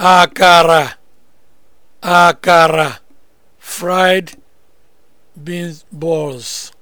akara akara fried beans balls